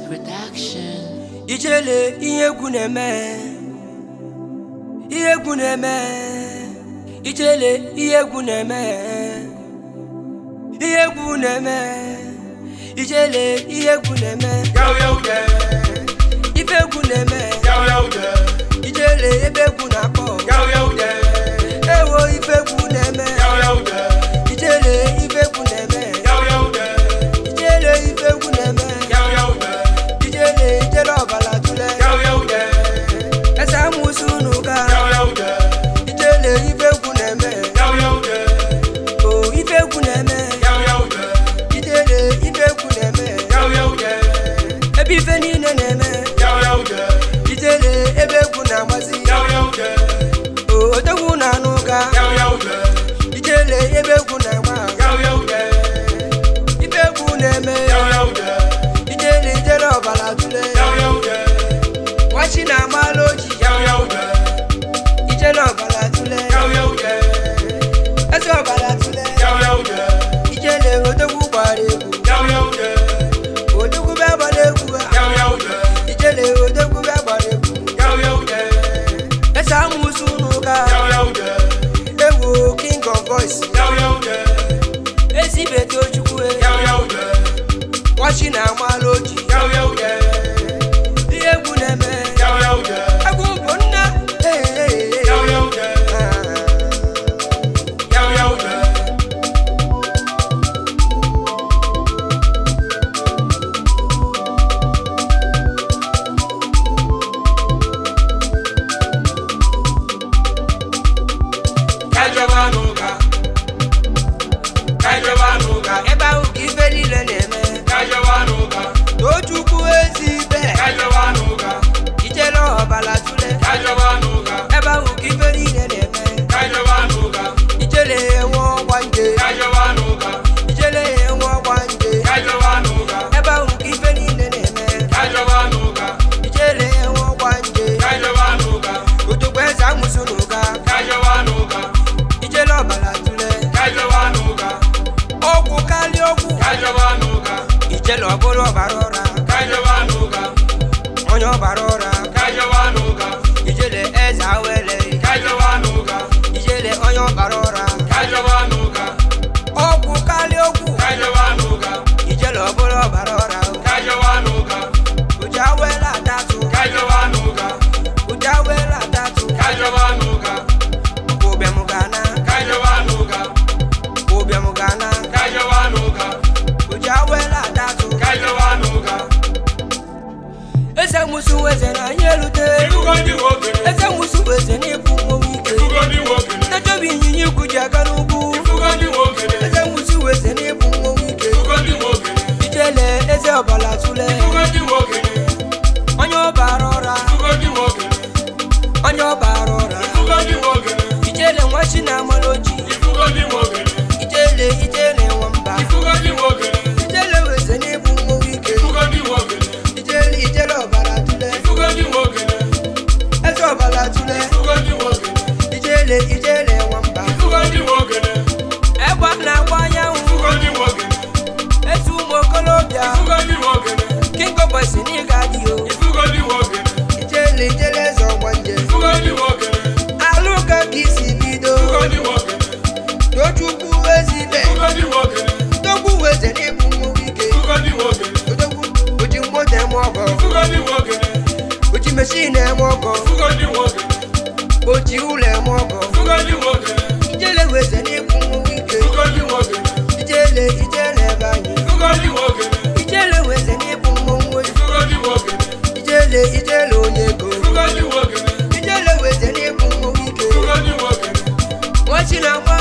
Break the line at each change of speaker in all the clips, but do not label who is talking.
Protection. Production. Ijele ihe egwu Ijele ihe egwu Ijele ihe egwu na-eme. Yawu yawu de. Ife Ijele ebe Bienvenue ọchị na-amalụ oji ihe egwu na-eme egwu bụ nne Kaijoba n'ụka Kaijoba n'ụka ebe ahụ balajúlẹ̀. kájọba nù. Bọ́lá Túnlé. Dúró bí wo mwoko Fugali woge Boji ule mwoko Fugali woge Ijele weze ni kumungike Fugali woge Ijele ijele banyi Fugali woge Ijele weze ni kumungwe Fugali woge Ijele ijele onyeko Fugali woge Ijele weze ni kumungike Fugali woge Wachina kwa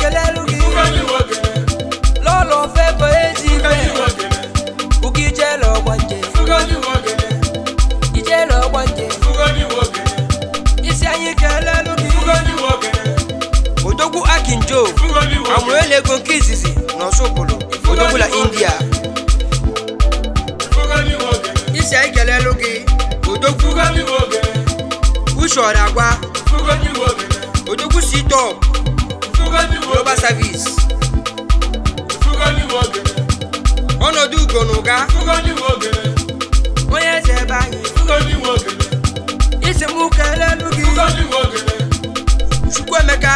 ekele elugi lọlọ fe bụ ezi ife ugo ijele ọgbanje ijele ọgbanje isi anyị kele elugi odogwu akinjo amụela ego nke izizi na ọsụpụrụ odogbula india isi anyị kele elugi odogwu ushọrọ agwa odogwu sitọp global service ọnọdụ ugo na ụga onye eze ebe anyị isi m kelelu gị Chukwuemeka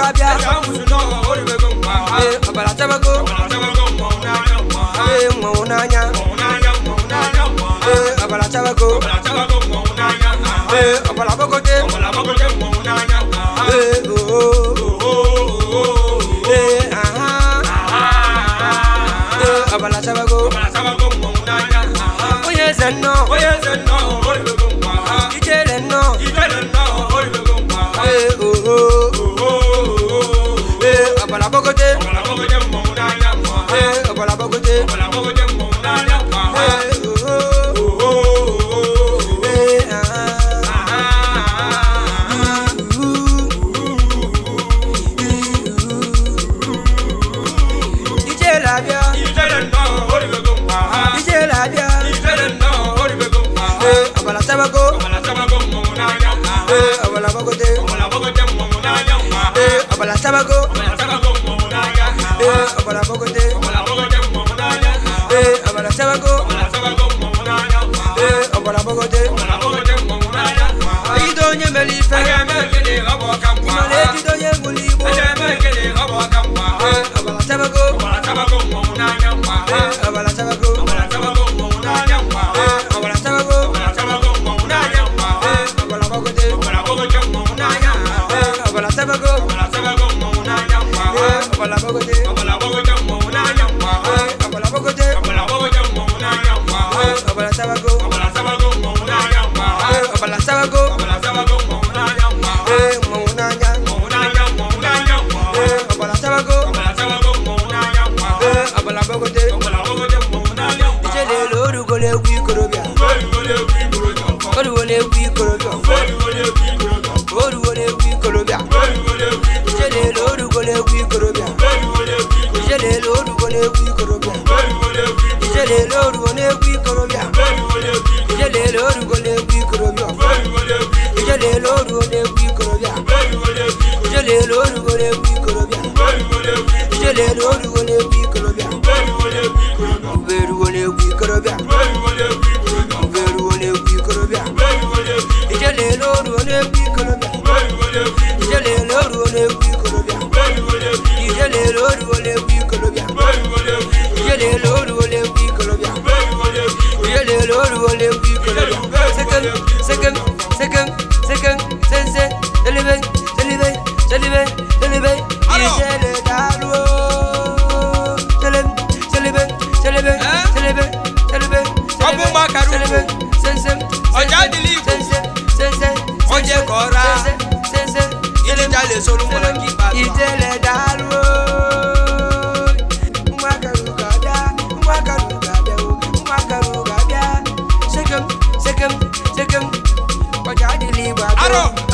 sabia abala tabago mwa unanya abala tabago abala bokote abala tabago oye zenno oye zenno ijele no ijele no gonna. wọlé kú ìkorobíà. Fóònù wọlé kú ìkorobíà. Fóònù wọlé kú ìkorobíà. Fóònù wọlé kú ìkorobíà. Fóònù wọlé kú ìkorobíà. Fóònù wọlé kú ìkorobíà. Ìṣẹ̀lẹ̀ lóru wọlé kú ìkorobíà. Fóònù wọlé kú ìkorobíà. Ìṣẹ̀lẹ̀ lóru wọlé kú ìkorobíà. Fóònù wọlé kú ìkorobíà. Ìṣẹ̀lẹ̀ lóru wọlé kú ìkorobíà. Fóònù wọlé kú ìkorobíà. Ìṣẹ̀lẹ̀ lóru wọlé kú ìkorobíà. Fóònù wọlé kú ìkorobíà. Ìṣẹ̀lẹ̀ lóru wọlé kú ìkorobíà. Fóònù wọlé kú ìkorobíà. Ìṣẹ̀lẹ̀ lóru wọlé kú ìkorobíà. Fóònù wọlé kú ìkorobíà. Ìṣẹ̀lẹ̀ lóru wọlé kú ìkorobíà. wole wi kolo second second second second sense deliver deliver deliver deliver iṣẹ́ lè dàrú o deliver deliver deliver deliver deliver ọbùn bá kàrú ọjà dìlí ikú ọjẹ kọra ilé jalè solúmọ lọ kí bàtà. ìtẹ̀lẹ̀ dàrú o. No.